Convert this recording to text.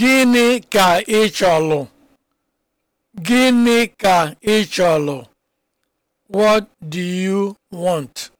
Gịnị ka ị chọlụ? Gịnị ka ị chọlụ? What do you want?